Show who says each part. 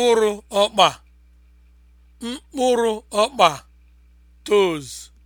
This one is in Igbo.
Speaker 1: mkpụrụ ọkpa mkpụrụ ọkpa (toes)